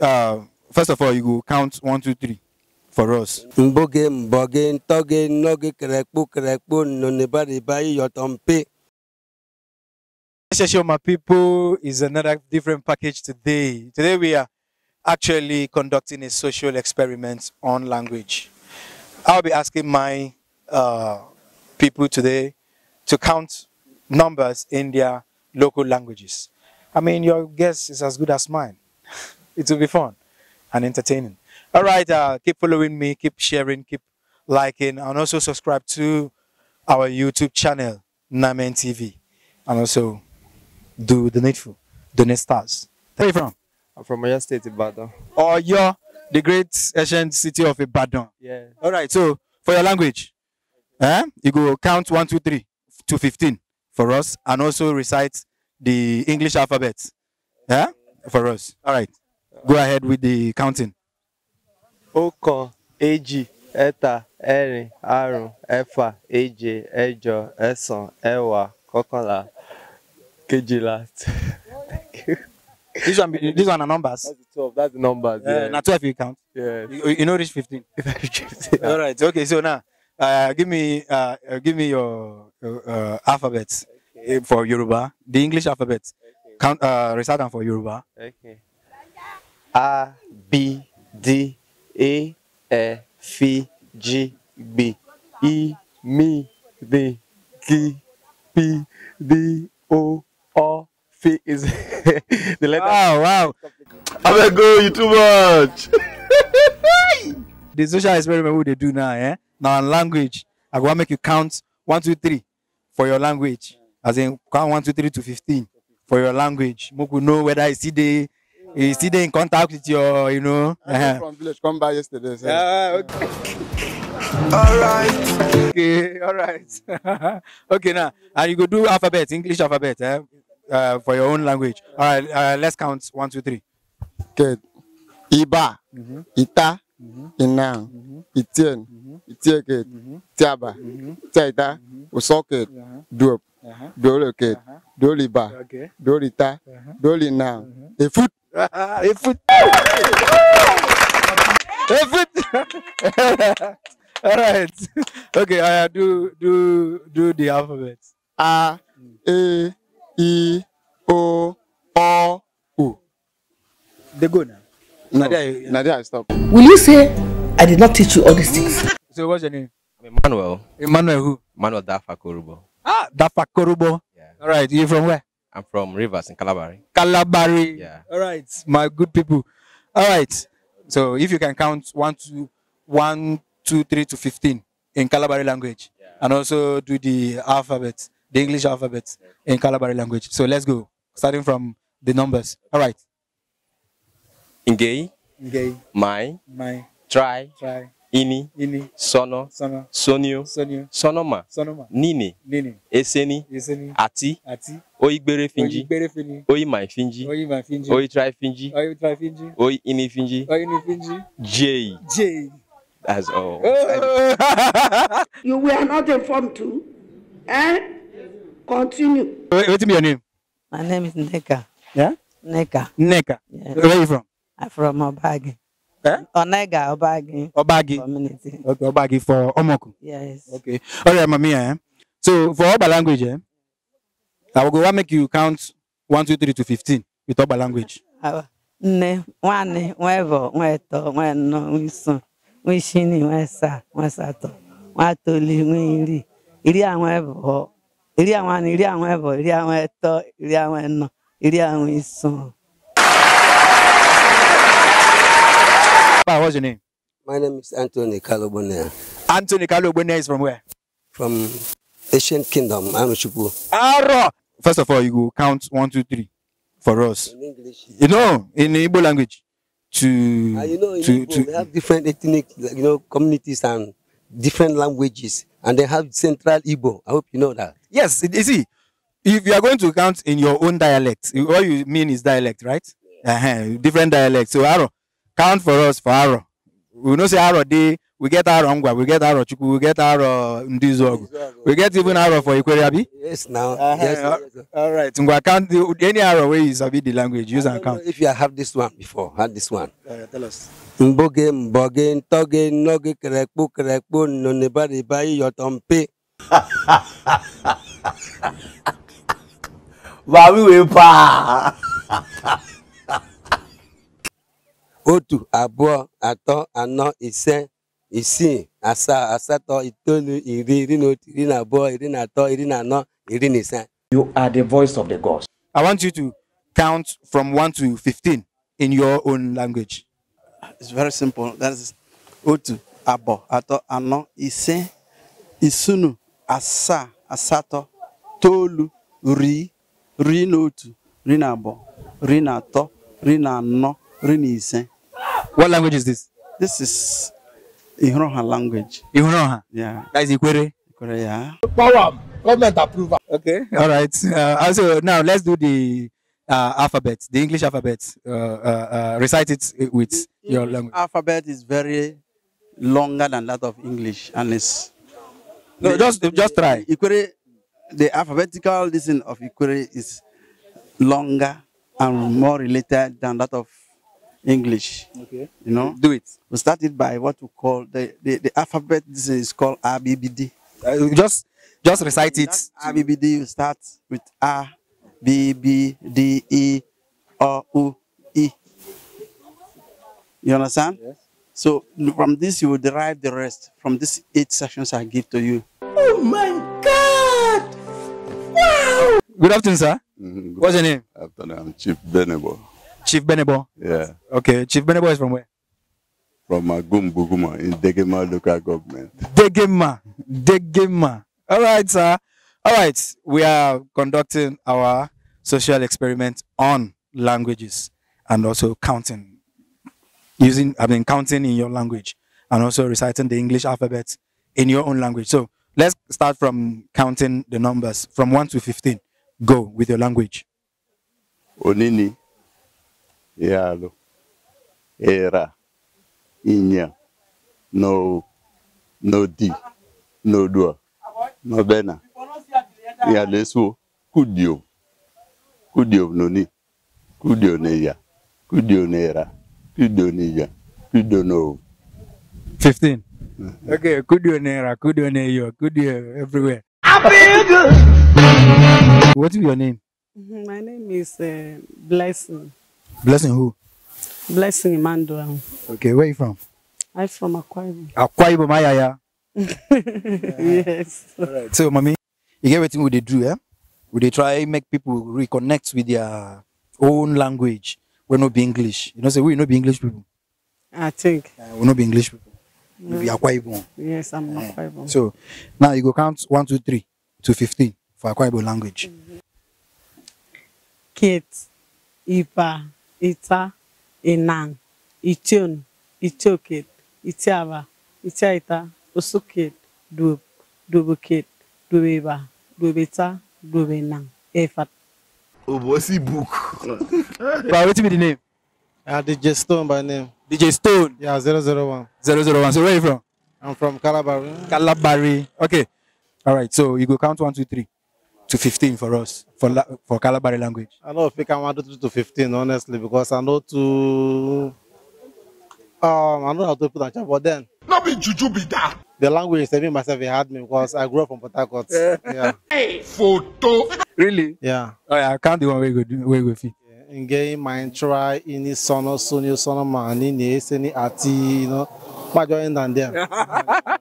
uh, first of all, you go count one, two, three for us. Mboge, mboge, Show my people is another different package today. Today we are actually conducting a social experiment on language. I'll be asking my uh, people today to count numbers in their local languages. I mean, your guess is as good as mine. it will be fun and entertaining. All right, uh, keep following me, keep sharing, keep liking, and also subscribe to our YouTube channel, Namen TV, and also do the needful, donate stars. Where are you from? I'm from Oyo State, Ibadan. Oh, you're the great ancient city of Ibadan. Yeah. All right, so for your language, eh, you go count one, two, three to 15 for us, and also recite the English alphabet yeah, for us. All right. go ahead with the counting. ọ̀kan èjì ẹ̀ta ẹ̀rin àrún ẹ̀fà èje ẹ̀jọ ẹ̀sán ẹ̀wá kọ́kànlá kejìlá. this one be this one are numbers. that's the twelve that's the numbers. Uh, yeah. na twelve you count. Yeah. You, you no reach fifteen. yeah. all right okay so now uh, give me uh, give me your uh, alphabet okay. for Yoruba the English alphabet okay. count uh, recite them for Yoruba. Okay a b d e e f g b i m d G p d o o f is the letter. Wow, wow. I'm going you too much. the social experiment what they do now, eh? Now in language, I go make you count one, two, three for your language. As in count one, two, three to fifteen for your language. Moku know whether I see the you still in contact with your, you know. Uh-huh. From village, come by yesterday. So. Yeah, okay. all right. Okay, all right. okay, now and you go do alphabet, English alphabet, eh? uh, for your own language. All right, uh, let's count one, two, three. Good. Iba, mm-hmm. Ita, mm-hmm. Inang, mm-hmm. Itien, mm-hmm. Itieket, mm-hmm. Tiaba, mm-hmm. Tiaita, mm-hmm. Usoket, uh-huh. Duop, uh-huh. Doloket, uh-huh. Doliba, okay. Dolita, uh-huh. Dolinang, uh-huh. Efut. All right. Okay, I do do do the alphabet. A, E, I, O, O, U. They go now. No, Nadia, Nadia, stop. Will you say I did not teach you all these things? So what's your name? Emmanuel. Emmanuel who? Emmanuel Dafa Korubo. Ah, Dafa Korubo. Yeah. All right. You from where? I'm from Rivers in Calabari. Calabari. Yeah. All right, my good people. All right. So if you can count one, two, one, two, three to fifteen in Calabari language, yeah. and also do the alphabet, the English alphabet in Calabari language. So let's go, starting from the numbers. All right. Ngei. Ngei. My. My. Try. Try. ini, ini sono, sono sonio, sonio sonoma, sonoma nini, nini eseni, eseni Ati. Ati. oigbere finji, oigbere finji oimai finji, oimai finji ini finji, oi j. j. That's all. Oh. you were not informed to, Eh? Continue. What's your name? My name is Neka. Yeah? Neka. Neka. Yes. Where are you from? I'm from Obagi. Onega Obagi. Obagi. Community. Okay, Obagi for Omoku. Yes. Okay. All right, Eh? So for Oba language, eh? I will go and make you count one, two, three to fifteen with Oba language. Nne, nwanne, nwevo, nweto, nweno, nwiso, nwishini, nwesa, nwesato, nwatoli, nwiri, iri anwevo, iri anwani, iri anwevo, iri anweto, iri anweno, iri Papa, what's your name? My name is Anthony Kalobonea. Anthony Kalobonea is from where? From Asian Kingdom, Anuchupu. Aro! First of all, you go count one, two, three for us. In English. You know, in Igbo language. To, uh, you know, to, Igbo, to, we have different ethnic, you know, communities and different languages. And they have Central Igbo. I hope you know that. Yes, you see, if you are going to count in your own dialect, what you mean is dialect, right? Yeah. Uh -huh, different dialects. So, Aro, count for us for arọ we know say arọ dey we get arọ ngwa we get arọ chukwu we get arọ ndizuogu we get even arọ for ikwere abi. yes now uh -huh. yes, yes, all right ngwa count the, any arọ wey you sabi the language use am count. if you have this one before had this one. Uh, tell us. mboge mboge ntoge nnoge kerekpo kerekpo nnonibariba iyọtọ mpe. ha ha ha otu abụọ atọ anọ ise isii asaa asatọ itoolu iri iri na otu iri na abụọ iri na atọ iri na anọ iri na ise You are the voice of the gods. I want you to count from one to fifteen in your own language. It's very simple. That is otu, abo, ato, ano, ise, isunu, asa, asato, tolu, ri, ri Otu ri n'abo, ri n'ato, ri n'ano, ri n'ise. What language is this? This is Ihuroha language. Ihuroha? Yeah. That is Ikwere? Ikwere, yeah. Power, government approval. Okay, all right. Uh, also, now let's do the uh, alphabet, the English alphabet. Uh, uh, uh recite it with the your English language. alphabet is very longer than that of English, and No, the, just, just try. Ikwere, the alphabetical listing of Ikwere is longer and more related than that of English. Okay. You know? Do it. We started by what we call the, the, the alphabet. This is called RBBD. Uh, just just recite it. RBBD, you start with A, B, B, D, E, O, U, E. You understand? Yes. So from this, you will derive the rest from these eight sections I give to you. Oh my God! Wow! Good afternoon, sir. Mm -hmm. What's your name? Afternoon. I'm Chief Benebo. Chief Benebo. Yeah. Okay, Chief Benebo is from where? From Magumbuguma in Degema local government. Degema, Degema. All right, sir. All right, we are conducting our social experiment on languages and also counting using I mean counting in your language and also reciting the English alphabet in your own language. So let's start from counting the numbers from 1 to 15. Go with your language. Onini. yalo era Inya, no no di no dua no bena ya lesu kudio kudio noni kudio ne ya kudio ne era kudio ne ya kudio no 15 uh-huh. Okay, kudio nera, kudio neyo, kudio everywhere. What is your name? Mm-hmm, my name is uh, Blessing. Blessing who? Blessing Emmanuel. Okay, where you from? I'm from Akwa Ibom. Akwa my yaya. yes. All right. So, mommy, you get everything we they do, yeah? Would they try make people reconnect with their own language. We not be English. You know, say so we not be English people. I think. Uh, we not be English people. No. We be Akwa Ibom. Yes, I'm uh, Akwa So, now you go count one, two, three to fifteen for Akwa Ibom language. Mm -hmm. Kate, Ipa ita inang ition itioket itiaba itiaita osuket duob duoboket duobeba duobeta duobenang efat obosi book but wetin be the name uh, dj stone by name dj stone yeah zero zero zero one, zero one. so where you from i'm from calabari calabari okay all right so you go count one two three to 15 for us for for Calabari language? I know if African one two to 15, honestly, because I know to um I know how to put on chat, but then not be juju be that. The language is saving myself it had me because I grew up from Port Harcourt. Yeah. yeah. Hey, photo. Really? Yeah. Oh yeah, I can't do one way go way go fit. Nge Maintra, Ini Sono, Sunio Sono Mani, Neseni Ati, you know, what going down them.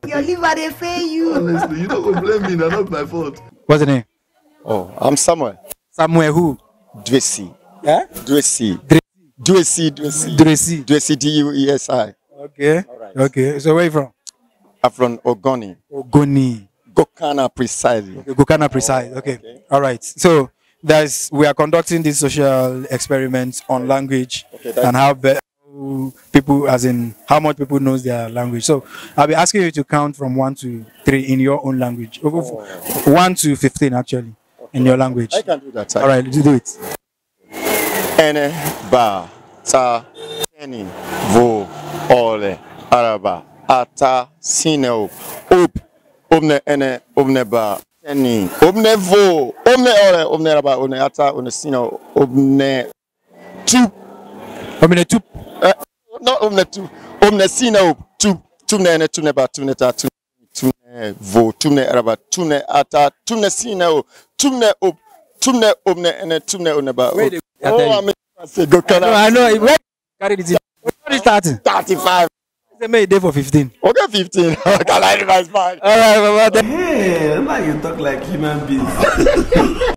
Your liver, they fail you. Honestly, you don't blame me, that's not my fault. What's the name? Oh, I'm somewhere. Somewhere who? Dwesi. Yeah. Dwesi. Dwesi, Dwesi. Dwesi. Dwesi, D-U-E-S-I. Okay. All right. Okay. So where you from? I'm from Ogoni. Ogoni. Gokana precisely. Okay, Gokana precise. okay. okay. All right. So there's we are conducting this social experiment on okay. language and how people as in how much people knows their language so i'll be asking you to count from one to three in your own language oh. one to 15 actually in your language? I can do that. Sir. All right, you do it. Ene ba ta teni vo ole araba ata sineo up omne ene omne ba teni omne vo omne ole omne araba omne ata omne sineo omne tu omne tu eh, no not omne tu omne sineo tu ne tu ne ba ne ta ne vo tumne araba tumne ata tumne sina o tumne ob tumne obne ene tumne oneba o oh i'm go kana i know where carry this what is 30 35 they made day for 15 okay 15 can i revise mine all right baba hey why you talk like human beings